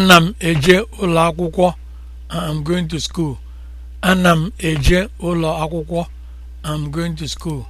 ana m eje ụlọ akwụkwọ i'm um, going i'm going to school um,